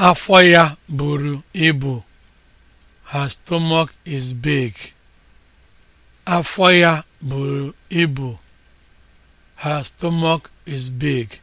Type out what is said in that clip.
Afọ ya buru ibu. Her stomach is Her stomach is big.